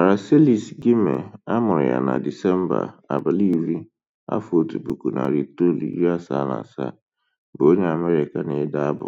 Aracelis Gyimah amụrụ ya na Disemba iri iri afọ narị asaa na asaa bụ onye Amerịka na-ede abụ.